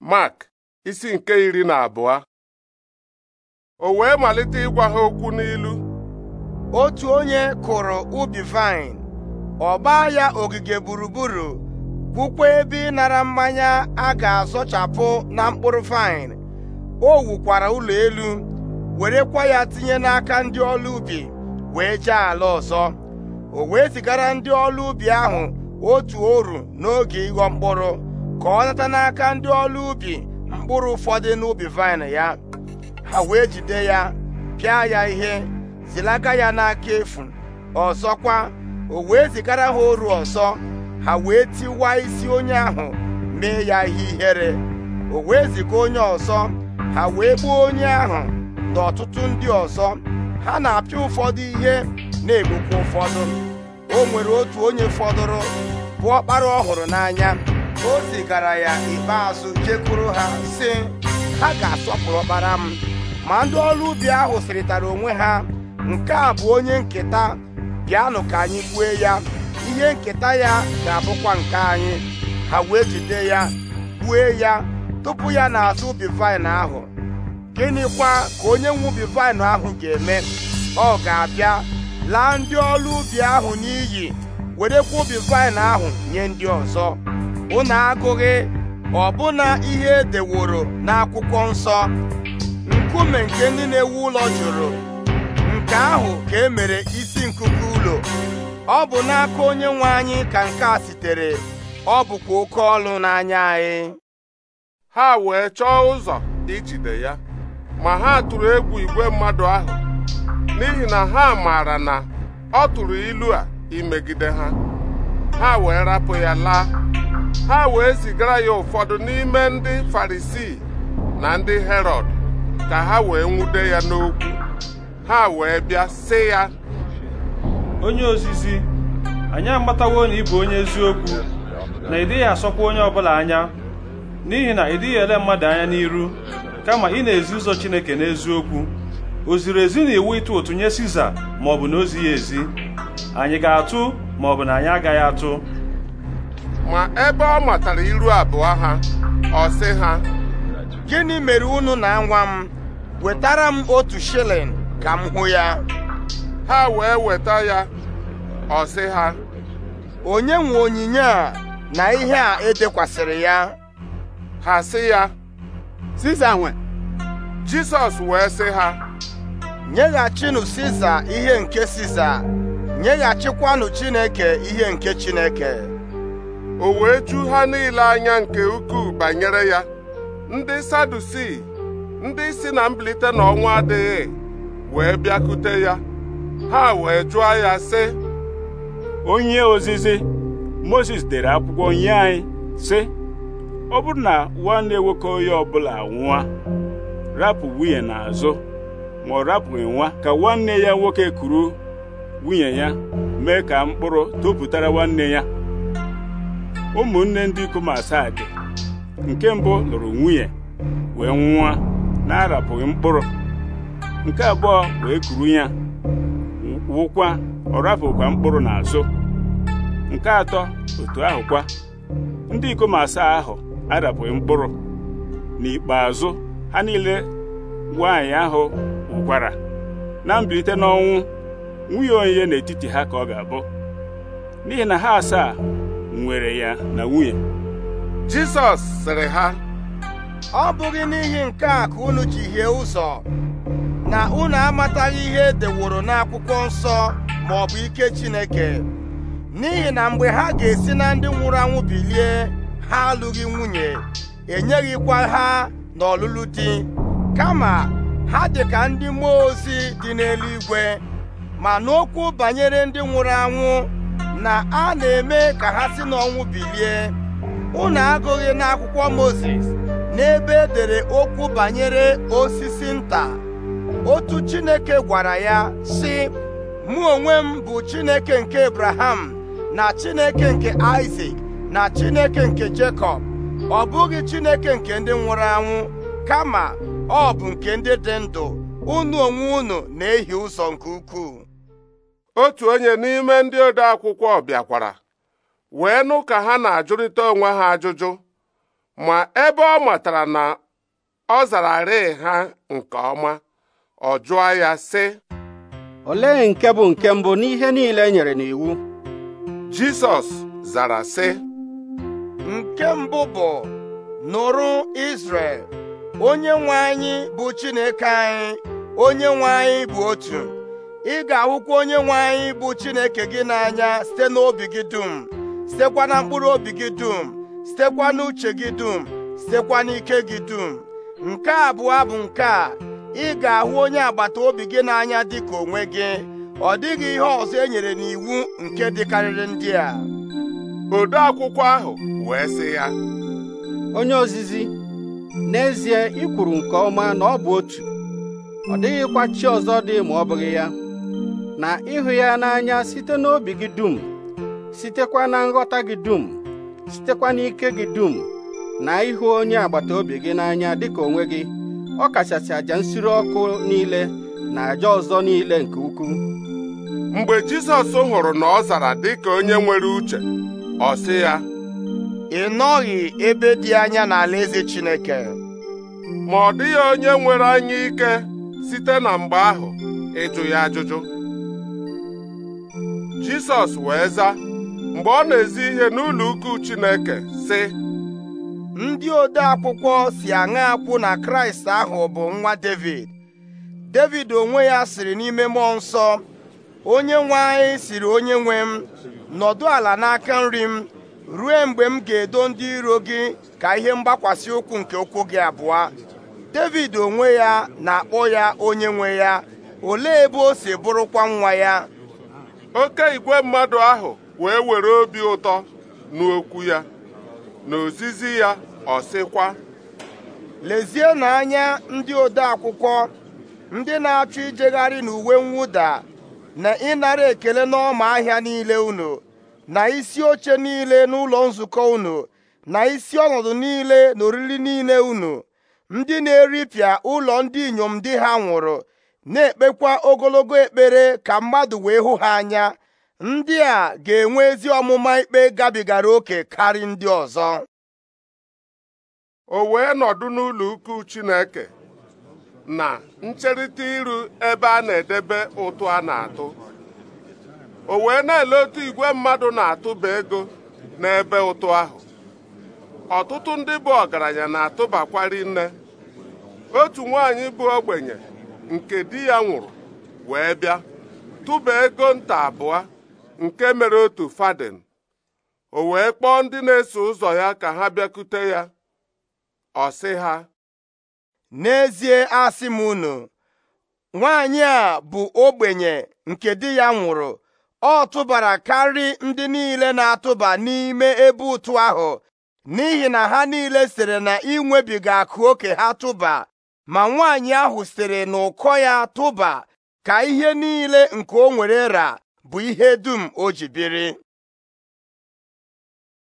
Mark isi nke iri na abụọ o wee malite ịgwa ha okwu n'ilu otu onye kụrụ ubi fain, ọ gbaa ya ogige gburugburu kwukwa ebe ịnara mmanya a ga-azọchapụ na mkpụrụ fain. o wukwara ụlọ elu werekwa ya tinye n'aka ndị ọrụ ubi wee jee ala ọzọ o wee zigara ndị ọrụ ubi ahụ otu oru n'oge ịghọ mkpụrụ ka ọ nata n'aka ndị ọrụ ubi mkpụrụ ụfọdụ n'ubi vine ya ha wee jide ya pịa ya ihe zilaga ya n'aka efu ọzọkwa o wee zigara ha oru ọzọ ha wee tiwa isi onye ahụ mee ya ihe ihere o wee ziga onye ọzọ ha wee gbuo onye ahụ na ọtụtụ ndị ọzọ ha na-apịa ụfọdụ ihe na-egbukwa ụfọdụ o nwere otu onye fọdụrụ bụ ọkpara ọhụrụ n'anya o zigara ya ikpeazụ jekwuru ha sị ha ga-asọpụrụ ọkpara m ma ndị ọrụ ubi ahụ sịrịtara onwe ha nke a bụ onye nketa bịanụ ka anyị gbue ya ihe nketa ya ga-abụkwa nke anyị ha wee jide ya gbue ya tupu ya na-azụ ubi vaịn ahụ gịnịkwa ka onye nwe ubi vaịn ahụ ga-eme ọ ga-abịa laa ndị ọrụ ubi ahụ n'iyi werekwa ubi vaịn ahụ nye ndị ọzọ unu agụghị ọbụna ihe edeworo n'akwụkwọ nsọ nkume nke ndị na-ewu ụlọ jụrụ nke ahụ ka e mere isi nkuku ụlọ ọ bụ n'aka onye nwe anyị ka nke a sitere ọ bụkwa oke ọlụ n'anya anyị ha wee chọọ ụzọ ijide ya ma ha tụrụ egwu igwe mmadụ ahụ n'ihi na ha maara na ọ tụrụ ilu a imegide ha ha wee rapụ ya laa ha wee zigara ya ụfọdụ n'ime ndị farisii na ndị herọd ka ha wee nwude ya n'okwu ha wee bịa sị ya onye ozizi anyị amatawo na ị bụ onye eziokwu na ịdịghị dịghị asọkwa onye ọbụla anya n'ihi na ị ele mmadụ anya n'iru kama ị na-ezi ụzọ Chineke n'eziokwu o ziri ezi na iwu ịtụ ụtụ nye Siza ma ọ bụ na ozi ya ezi anyị ga-atụ ma ọ bụ na anyị agaghị atụ ma ebe ọ matara iru abụọ ha ọ sị ha gịnị mere unu na-anwa m wetara m otu shilling ka m hụ ya ha wee weta ya ọ sị ha onye nwe onyinye a na ihe a edekwasịrị ya ha sị ya Siza nwe Jizọs wee sị ha nyeghachinụ Siza ihe nke Siza nyeghachikwanụ Chineke ihe nke Chineke o wee ju ha niile anya nke ukwuu banyere ya ndị sadusi ndị si na mbilite n'ọnwa adịghị wee bịakute ya ha wee jụọ ya sị onye ozizi Moses dere akwụkwọ nye anyị sị ọ bụrụ na nwanne nwoke onye ọbụla nwa rapụ nwunye n'azụ ma ọ rapụghị nwa ka nwanne ya nwoke kuru nwunye ya mee ka mkpụrụ tụpụtara nwanne ya ụmụnne ndị ikom asaa dị nke mbụ lụrụ nwunye wee nwa na-arapụghị mkpụrụ nke abụọ wee kuru ya wụkwa ọ rapụkwa mkpụrụ n'azụ nke atọ otu ahụ kwa ndị ikom asaa ahụ arapụghị mkpụrụ n'ikpeazụ ha niile nwaanyị ahụ wụkwara na mbilite n'ọnwụ nwunye onye n'etiti ha ka ọ ga-abụ n'ihi na ha asaa nwere ya na nwunye Jisọs sịrị ha ọ bụghị n'ihi nke a ka unu ji hie ụzọ na unu amataghị ihe e deworo n'akwụkwọ nsọ ma ọ bụ ike Chineke n'ihi na mgbe ha ga-esi na ndị nwụrụ anwụ bilie ha alụghị nwunye enyeghịkwa ha n'ọlụlụ di kama ha dị ka ndị mmụọ ozi dị n'eluigwe ma n'okwu banyere ndị nwụrụ anwụ na a na-eme ka ha si n'ọnwụ bilie unu agụghị n'akwụkwọ moses n'ebe edere okwu banyere osisi nta otu Chineke gwara ya si mụ onwe m bụ Chineke nke Abraham na Chineke nke isak na Chineke nke Jekọb ọ bụghị Chineke nke ndị nwụrụ anwụ kama ọ bụ nke ndị dị ndụ unu onwe unu na-ehi ụzọ nke ukwuu otu onye n'ime ndị ode akwụkwọ bịakwara wee nụ ka ha na-ajụrịta onwe ha ajụjụ ma ebe ọ matara na ọ zara rịị ha nke ọma ọ jụọ ya sị olee nke bụ nke mbụ n'ihe niile e nyere n'iwu Jisọs zara sị nke mbụ bụ nụrụ Izrel onye nwe anyị bụ Chineke anyị onye nwe anyị bụ otu ị ga-ahụkwa onye nwe anyị bụ Chineke gị n'anya site n'obi gị dum sitekwa na mkpụrụ obi gị dum sitekwa n'uche gị dum sitekwa n'ike gị dum nke abụọ bụ nke a ị ga-ahụ onye agbata obi gị n'anya ka onwe gị ọ dịghị ihe ọzọ e nyere n'iwu nke dịkarịrị ndị a ode akwụkwọ ahụ wee sị ya onye ozizi n'ezie ikwuru nke ọma na ọ bụ otu ọ dịghịkwa chi ọzọ dị ma ọ bụghị ya na ịhụ ya n'anya site n'obi gị dum sitekwa na nghọta gị dum sitekwa n'ike gị dum na ịhụ onye agbata obi gị n'anya dịka onwe gị ọ kachasị nsiri nsure ọkụ niile na aja ọzọ niile nke ukwuu mgbe Jizọs hụrụ na ọ zara dịka onye nwere uche ọ sị ya ị nọghị ebe dị anya n'alaeze Chineke ma ọ dịghị onye nwere anya ike site na mgbe ahụ ịjụ ya ajụjụ Jisọs wee zaa mgbe ọ na-ezi ihe n'ụlọ ukwu Chineke sị ndị ode akwụkwọ si aṅa akwụ na Kraịst ahụ bụ nwa Devid Devid onwe ya siri n'ime mmụọ nsọ onye nwe anyị siri onye nwe m nọdụ ala n'aka nri m ruo mgbe m ga-edo ndị iro gị ka ihe mgbakwasị ụkwụ nke ụkwụ gị abụọ Devid onwe ya na-akpọ ya onye nwe ya olee ebe o si bụrụkwa nwa ya oke igwe mmadụ ahụ wee were obi ụtọ n'okwu ya na ozizi ya ọ sịkwa lezienụ anya ndị ode akwụkwọ ndị na-achọ ijegharị n'uwe mwụda na ịnara ekele n'ọma ahịa niile unu na isi oche niile n'ụlọ nzukọ unu na isi ọnọdụ niile na oriri niile unu ndị na-eripịa ụlọ ndị inyom di ha nwụrụ na-ekpekwa ogologo ekpere ka mmadụ wee hụ ha anya ndị a ga-enwe ezi ọmụma ikpe gabigara oke karị ndị ọzọ o wee nọdụ n'ụlọ ukwu Chineke na ncherịta iru ebe a na-edebe ụtụ a na-atụ o wee na-ele otu igwe mmadụ na-atụba ego n'ebe ụtụ ahụ ọtụtụ ndị bụ ọgaranya na-atụbakwari nne otu nwaanyị bụ ogbenye nke di ya nwụrụ wee bịa tụba ego nta abụọ nke mere otu faden. o wee kpọọ ndị na-eso ụzọ ya ka ha bịakute ya ọ sị ha n'ezie asị m unu nwaanyị a bụ ogbenye nke di ya nwụrụ ọ tụbara karị ndị niile na-atụba n'ime ebe ụtụ ahụ n'ihi na ha niile sịrị na inwebiga akụ oke ha tụba ma nwaanyị ahụ sịrị n'ụkọ ya tụba ka ihe niile nke o nwere ra bụ ihe dum o ji biri